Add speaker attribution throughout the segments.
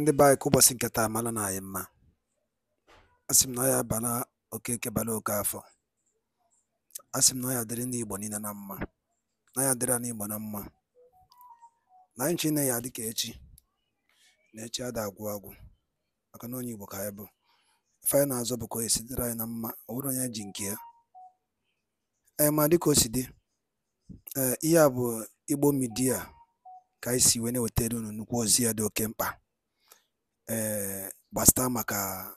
Speaker 1: ndị be anyị ka ụbọchị nke taa mara na anyị mma a sị m na ya bara okeke bara oke afọ a sị m na ya dịrị ndị Igbo niile na mma na ya dịrị na Igbo na mma na anyị chine ya dịka echi na echi ada agwụ agwụ maka na onye Igbo ka anyị bụ ife anyị na-azọ bụ ka o sitere anyị na mma ọ bụrụ onye ji nke ya ee eh, ma dịka o si dị ee eh, ihe a bụ Igbo midia ka anyị si wee na-ewetara unu nnukwu ozi ya dị oke mkpa ee eh, gbasịta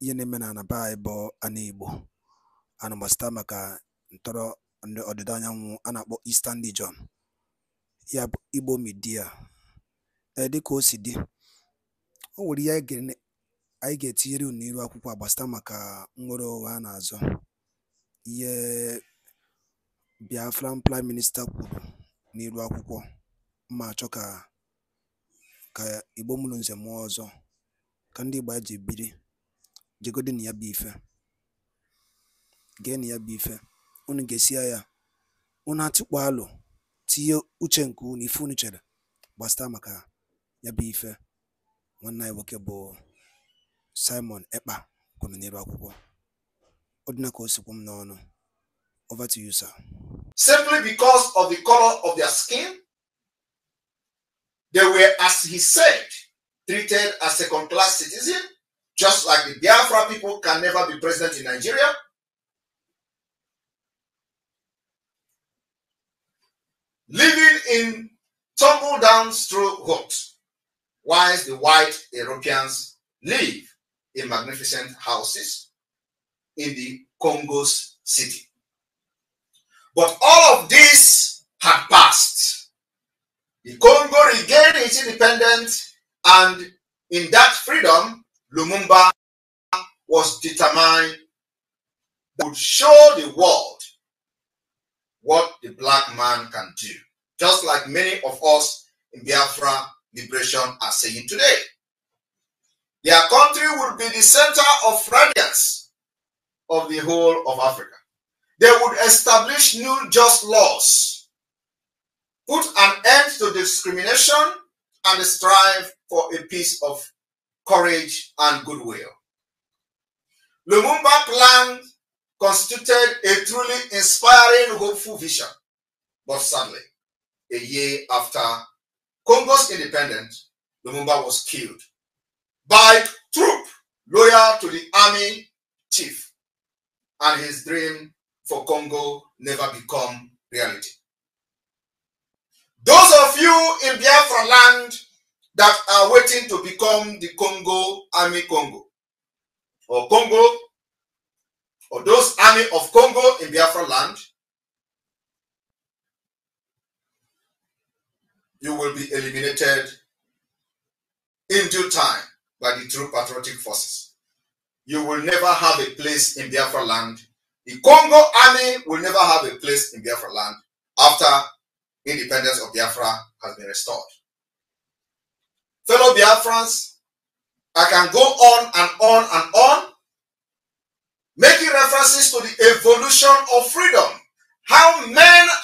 Speaker 1: ihe na-eme na anaba anyị bụ ana Igbo ana ntọrọ ndị ọdịda anyanwụ a na-akpọ Eastern Region ya bụ Igbo Media ee eh, dịka o si dị o nwere ihe anyị ga-etinyere unu n'iru akwụkwọ a maka nwere nnwere onwe a na-azọ ihe Biafran Prime minista kwuru n'iru akwụkwọ ma chọka. ka Ìgbo Nze mụọ Ọzọ ka ndị Ìgbo ji biri jegodi na ya bụ ife na ya bụ ife unu gesia ya unu atụkpọ alụ tinye uche nke unu ife unu chere gbasata maka ya bụ ife nwanne anyị nwoke bụ Simon Ekpa kwuru n'elu akwụkwọ ọ dị na ka o sikwu m n'ọnụ over to you sir
Speaker 2: simply because of the color of their skin They were, as he said, treated as second class citizens, just like the Biafra people can never be president in Nigeria. Living in tumble down straw huts, whilst the white Europeans live in magnificent houses in the Congo's city. But all of this had passed The Congo regained its independence, and in that freedom, Lumumba was determined that would show the world what the black man can do, just like many of us in Biafra liberation are saying today. Their country would be the center of radiance of the whole of Africa. They would establish new just laws put an end to discrimination and strive for a peace of courage and goodwill. Lumumba plan constituted a truly inspiring, hopeful vision, but sadly, a year after Congo's independence, Lumumba was killed by troop loyal to the army chief, and his dream for Congo never become reality. Those of you in Biafra land that are waiting to become the Congo Army Congo or Congo or those army of Congo in Biafra land, you will be eliminated in due time by the true patriotic forces. You will never have a place in Biafra land. The Congo army will never have a place in Biafra land after independence of Biafra has been restored. Fellow Biafrans, I can go on and on and on, making references to the evolution of freedom, how men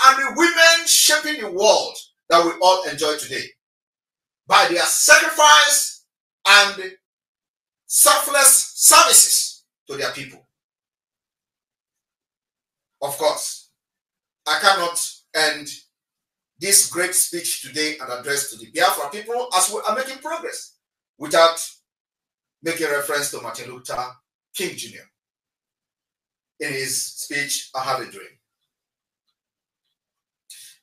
Speaker 2: and the women shaping the world that we all enjoy today. By their sacrifice and selfless services to their people. Of course, I cannot end this great speech today and address to the Biafra people as we are making progress without making reference to Martin Luther King Jr. In his speech, I Have a Dream.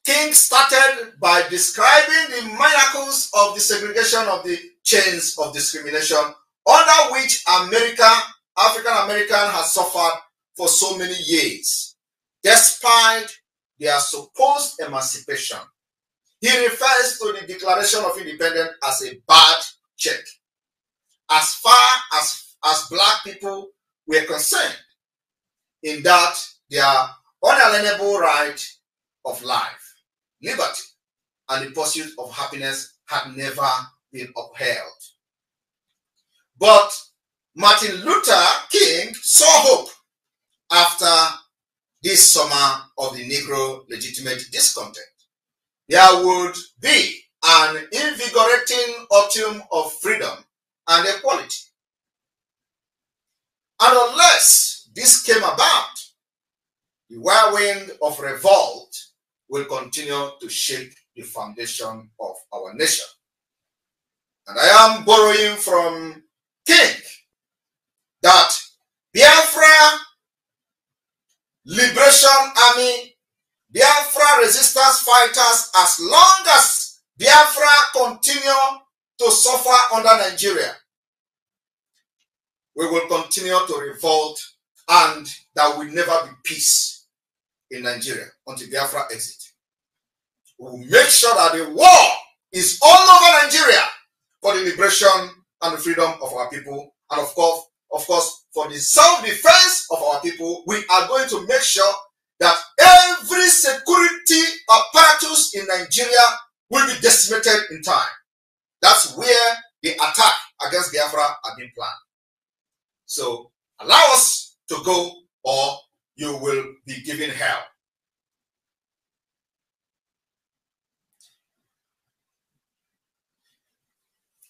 Speaker 2: King started by describing the miracles of the segregation of the chains of discrimination under which America, African American has suffered for so many years, despite their supposed emancipation he refers to the Declaration of Independence as a bad check. As far as, as black people were concerned, in that their unalienable right of life, liberty, and the pursuit of happiness had never been upheld. But Martin Luther King saw hope after this summer of the Negro legitimate discontent. there would be an invigorating autumn of freedom and equality. And unless this came about, the whirlwind of revolt will continue to shake the foundation of our nation. And I am borrowing from King that Biafra Liberation Army Biafra resistance fighters as long as Biafra continue to suffer under Nigeria. We will continue to revolt and there will never be peace in Nigeria until Biafra exit. We will make sure that the war is all over Nigeria for the liberation and the freedom of our people and of course, of course, for the self-defense of our people, we are going to make sure that every security apparatus in Nigeria will be decimated in time. That's where the attack against Biafra had been planned. So allow us to go or you will be given hell.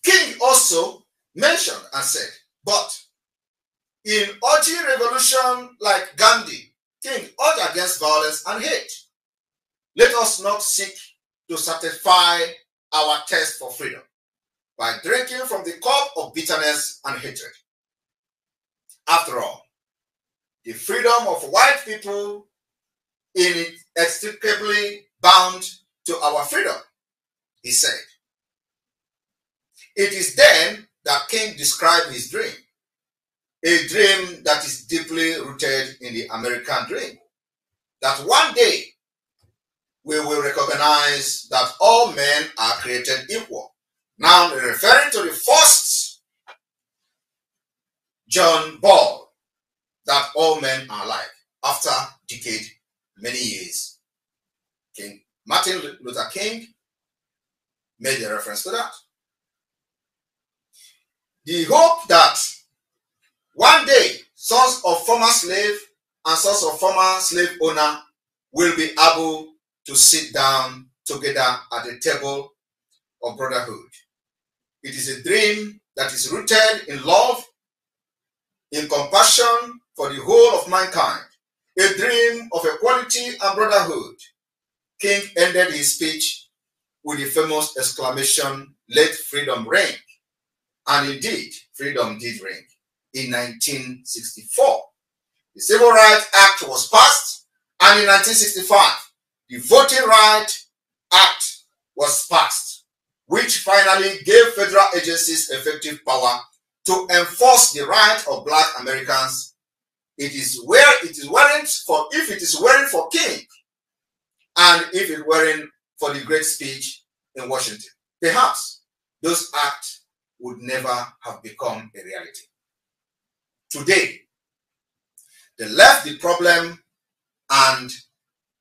Speaker 2: King also mentioned and said, but in urging revolution like Gandhi, King, urge against violence and hate. Let us not seek to satisfy our thirst for freedom by drinking from the cup of bitterness and hatred. After all, the freedom of white people is inextricably bound to our freedom, he said. It is then that King described his dream a dream that is deeply rooted in the American dream. That one day we will recognize that all men are created equal. Now, referring to the first John Ball, that all men are alike. After decade, many years, King Martin Luther King made a reference to that. The hope that former slave and sons of former slave owner will be able to sit down together at the table of brotherhood. It is a dream that is rooted in love, in compassion for the whole of mankind, a dream of equality and brotherhood. King ended his speech with the famous exclamation, Let freedom ring. And indeed, freedom did ring in 1964. The Civil Rights Act was passed, and in 1965, the Voting Rights Act was passed, which finally gave federal agencies effective power to enforce the right of black Americans. It is where it is wearing for if it is wearing for King, and if it wearing for the great speech in Washington, perhaps those acts would never have become a reality. Today, They left the problem and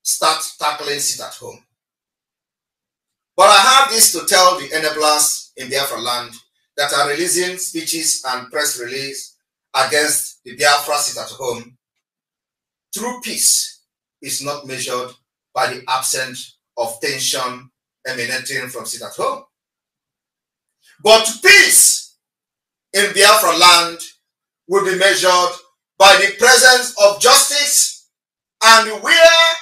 Speaker 2: start tackling it at home. But I have this to tell the enablers in Biafra land that are releasing speeches and press release against the Biafra sit at home. True peace is not measured by the absence of tension emanating from sit at home. But peace in Biafra land will be measured by the presence of justice, and where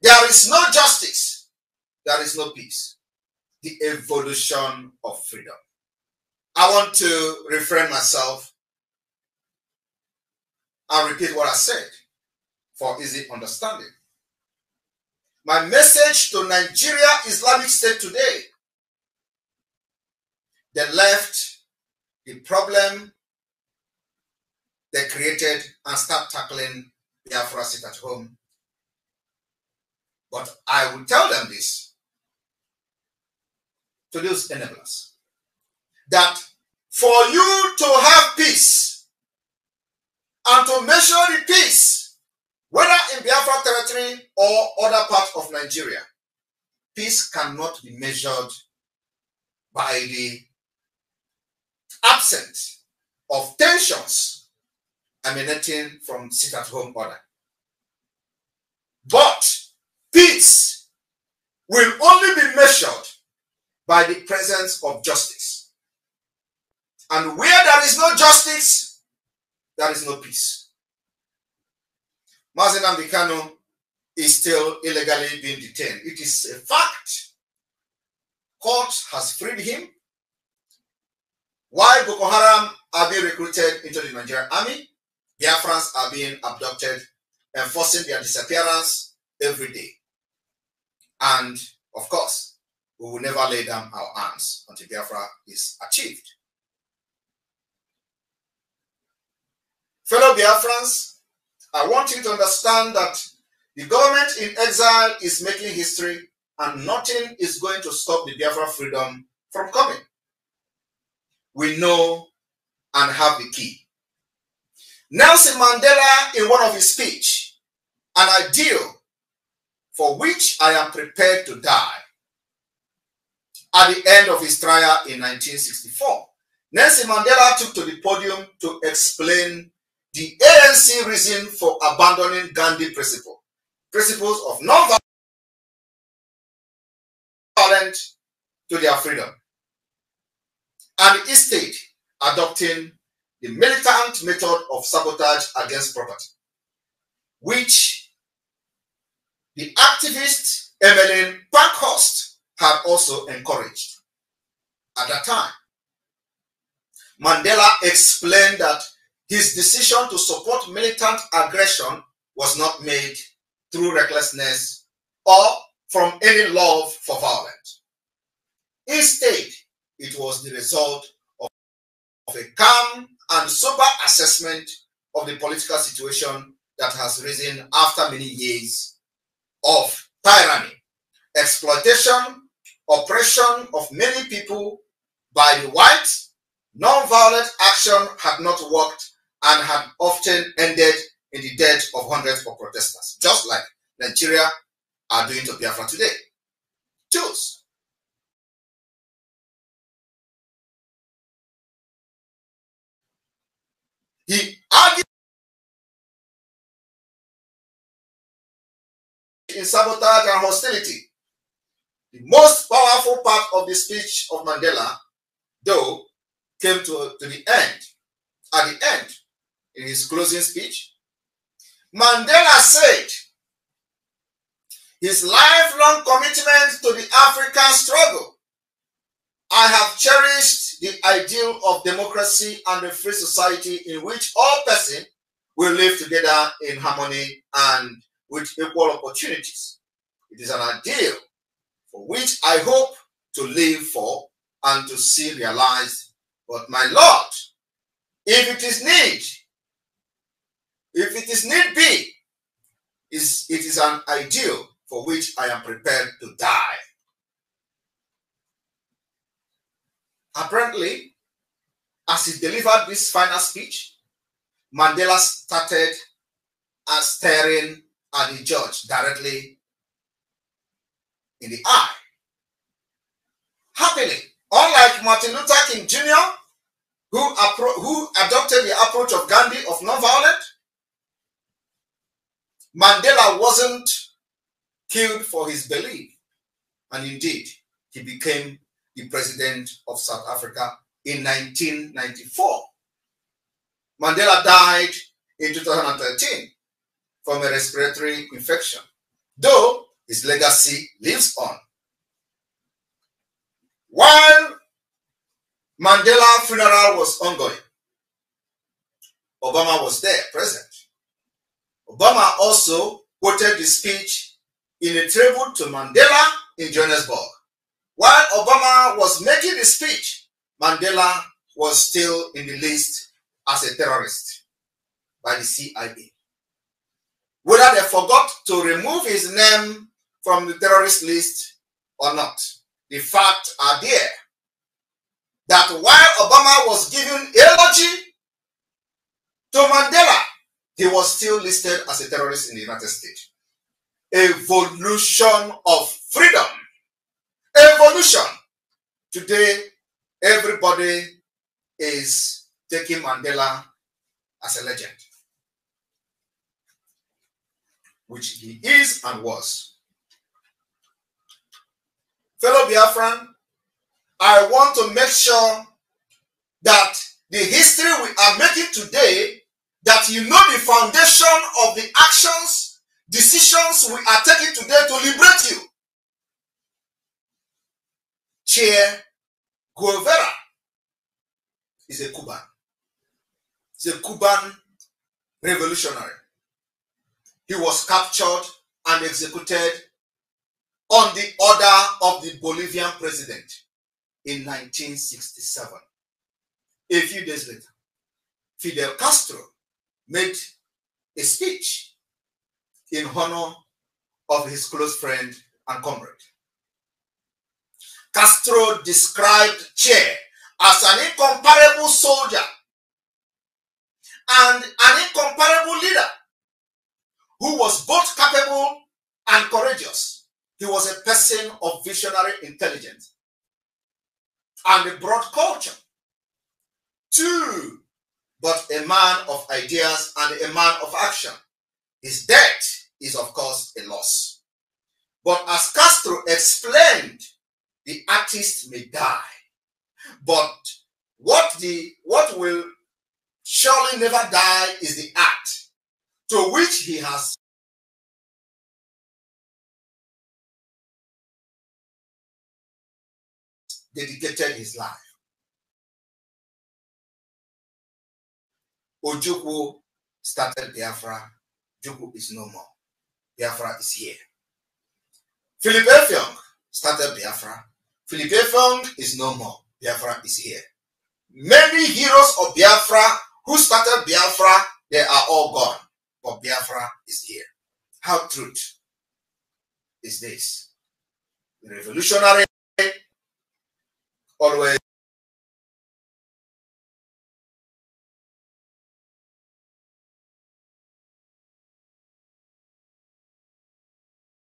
Speaker 2: there is no justice, there is no peace. The evolution of freedom. I want to refrain myself and repeat what I said for easy understanding. My message to Nigeria Islamic State today the left, the problem they created and start tackling Biafra sit at home. But I will tell them this to those enablers that for you to have peace and to measure the peace, whether in Biafra territory or other parts of Nigeria, peace cannot be measured by the absence of tensions emanating from sit at home order. But peace will only be measured by the presence of justice. And where there is no justice, there is no peace. Mazin Ambikano is still illegally being detained. It is a fact. Court has freed him. Why Boko Haram are being recruited into the Nigerian army? Biafrans are being abducted and forcing their disappearance every day. And of course, we will never lay down our arms until Biafra is achieved. Fellow Biafrans, I want you to understand that the government in exile is making history and nothing is going to stop the Biafra freedom from coming. We know and have the key. Nelson Mandela, in one of his speech, an ideal for which I am prepared to die, at the end of his trial in 1964, Nelson Mandela took to the podium to explain the ANC
Speaker 3: reason for abandoning Gandhi principle, principles of non-violent to their freedom,
Speaker 2: and the state adopting the militant method of sabotage against property, which the activist Emmeline Parkhurst had also encouraged at that time. Mandela explained that his decision to support militant aggression was not made through recklessness or from any love for violence. Instead, it was the result of a calm and sober assessment of the political situation that has risen after many years of tyranny, exploitation, oppression of many people by the whites. Non-violent action had not worked and had often ended
Speaker 3: in the death of hundreds of protesters, just like Nigeria are doing to Biafra today. Choose He argued in sabotage and hostility. The most powerful part of the speech of Mandela,
Speaker 2: though, came to, to the end. At the end, in his closing speech, Mandela said his lifelong commitment to the African struggle I have cherished the ideal of democracy and a free society in which all persons will live together in harmony and with equal opportunities. It is an ideal for which I hope to live for and to see realized. But my Lord, if it is need, if it is need be, is it is an ideal for which I am prepared to die. Apparently, as he delivered this final speech, Mandela started staring at the judge directly in the eye. Happily, unlike Martin Luther King Jr., who, who adopted the approach of Gandhi of nonviolent, Mandela wasn't killed for his belief. And indeed, he became the president of South Africa in 1994. Mandela died in 2013 from a respiratory infection, though his legacy lives on. While Mandela funeral was ongoing, Obama was there, present. Obama also quoted the speech in a tribute to Mandela in Johannesburg. While Obama was making the speech, Mandela was still in the list as a terrorist by the CIA. Whether they forgot to remove his name from the terrorist list or not, the fact are there that while Obama was giving eulogy to Mandela, he was still listed as a terrorist in the United States. Evolution of freedom Today, everybody is taking Mandela as a legend, which he is and was. Fellow Biafran, I want to make sure that the history we are making today, that you know the foundation of the actions, decisions we are taking today to liberate you. Che Guevara is a Cuban. He's a Cuban revolutionary. He was captured and executed on the order of the Bolivian president in 1967. A few days later, Fidel Castro made a speech in honor of his close friend and comrade. Castro described Che as an incomparable soldier and an incomparable leader who was both capable and courageous. He was a person of visionary intelligence and a broad culture. Two, but a man of ideas and a man of action. His death is, of course, a loss. But as Castro explained the artist may die, but
Speaker 3: what the what will surely never die is the act to which he has dedicated his life. Ojukwu started Biafra. Jukwu is no more. Biafra is here. Philip
Speaker 2: Effiong started Biafra. Philippe is no more. Biafra is here. Many heroes of Biafra who started Biafra, they are all gone. But Biafra is here. How true is this?
Speaker 3: The revolutionary always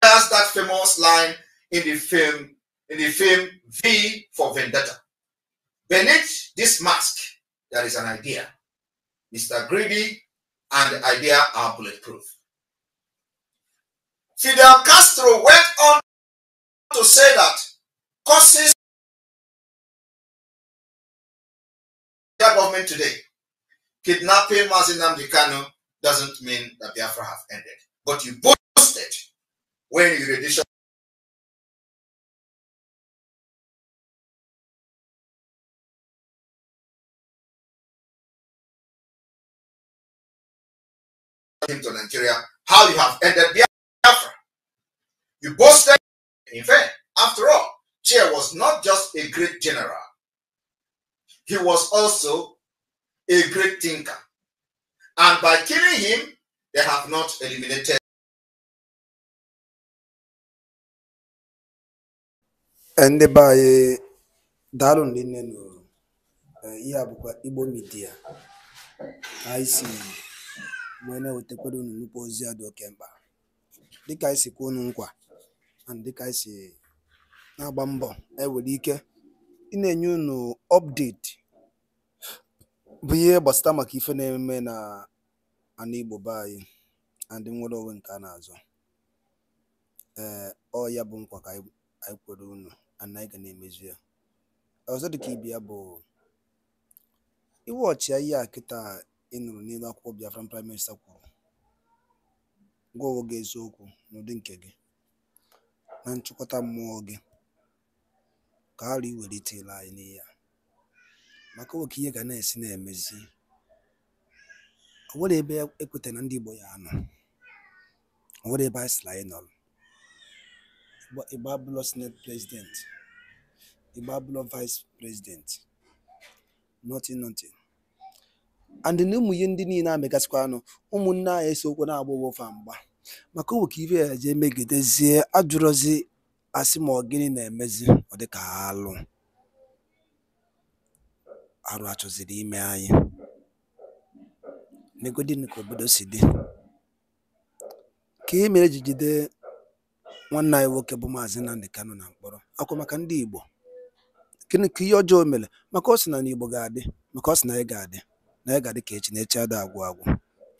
Speaker 3: that famous line in the film in the film V for Vendetta.
Speaker 2: Beneath this mask, there is an idea. Mr. Greedy and the idea
Speaker 3: are bulletproof. Fidel Castro went on to say that causes the government today, kidnapping Mazinam Dikano doesn't mean that Biafra have ended. But you boasted when you rendition came to Nigeria, how you have ended Biafra. You boasted
Speaker 2: in vain. After all, Chair was not just a great general,
Speaker 3: he was also a great thinker. And by killing him, they have not eliminated. ndị be eh, anyị daalụ ndị nne nụrụ
Speaker 1: eh, ihe a igbo midia wee na-ewetakwara unu nnukwu ozi a dị oke mkpa dịka anyị si kwuo unu nkwa and dịka anyị si na-agba mbọ ewere ike ị na-enye unu update bụ ihe gbasata maka ife na-eme na ana Igbo be anyị ndị nwere onwe nke a na-azọ ee ọ ya bụ nkwa ka anyị kwere unu ana anyị ga na-emezu ya ọzọ dịka ibe ya bụ iwe ọchịa ihe a kịta ị nụrụ n'elu akwụkwọ Biafran Prime Minister kwuru, gwa onwe gị eziokwu n'ụdị nke gị, na nchịkọta mmụọ gị, ka ara i welite anyị n'ihe a, maka oke ihe ga na-esi na-emezi, o nwere ebe ekwetara na ndị Igbo ya anọ, o nwere ebe anyị sịrị anyị nọrọ, Igbo abụlọ senate president, Igbo abụlọ vice president, nothing nothing. and na ụmụ ihe ndị niile a anụ ụmụnne anyị esokwu na-agba ụgwọfa mgba maka owu ka ibe ya jee megidezie ajụrụzi asị ma ọ gịnị na-emezi ọ dịka alụ arụ achọziri ime anyị negodi ka obodo si dị ka e mere ji nwanne anyị nwoke bụ maazị Nnamdi kano na mkpọrọ akwa maka ndị Igbo gịnị ka ihe ọjọọ mere maka ọ sị na n'Igbo ga-adị maka ọ sị na anyị ga-adị na ya ga-adị ka echi na echi ada agwụ agwụ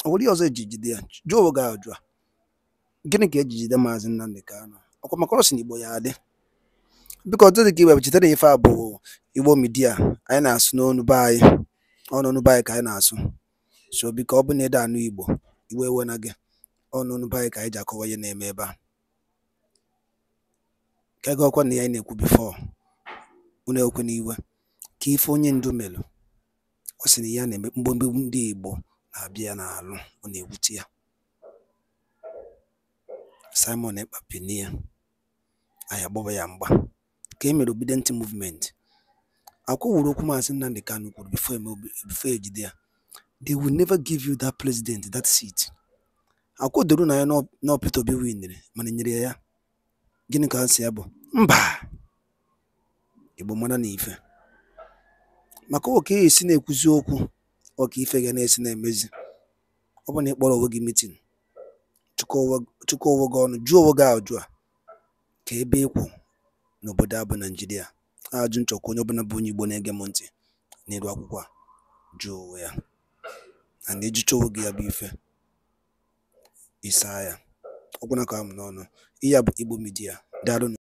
Speaker 1: ọ nwere ihe ọzọ eji jide ya jụọ oge gị ajụ gịnị ka eji jide maazị Nnamdi Kanu ọkwa maka ọsị na igbo ya adị biko dị ka iwe chetara ife a bụ igbo midia anyị na-asụ n'ọnụ be anyị ọnụnụ be anyị ka anyị na-asụ so biko ọ bụ na ede anụ igbo iwe ewe na gị ọnụnụ be anyị ka anyị ji akọwa ihe na-eme ebe a ka ego ọkwa na ya na-ekwu bifo unu ekwe n'iwe ka ife onye ndu melụ Ọ sị na ya na eme mgbemgbe ndị Igbo na-abịa n'alụ ọ na-ewute ya. Simon Ekpa penie ya, anyị ya mgba ka e mere Obidient Movement. wuru okwu Maazị Nnamdi Kanu kwuru e bifo e jide ya they will never give you that president that seat. doro na ya na Peter Obi winere mana nyere ya ya. Gịnị ka ha si ya bụ mba Igbo mara na ife maka e esi na-ekwuzi okwu ọka ife ga na-esi na-emezi ọ bụ na ị kpọrọ onwe gị mitin chụkọ onwe gị ọnụ jụọ onwe gị ajụ a ka ebe ịkwụ n'obodo a bụ Naijiria ajụ nchọkwa onye ọbụla bụ onye Igbo na-ege m ntị n'elu akwụkwọ a jụọ onwe ya na na-ejicha onwe gị ya bụ ife
Speaker 3: ịsaa ya ọgwụna ka m n'ọnụ ihe a bụ Igbo Media daalụ